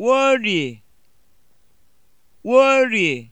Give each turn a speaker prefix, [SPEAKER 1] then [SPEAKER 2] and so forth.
[SPEAKER 1] Warrie, Warrie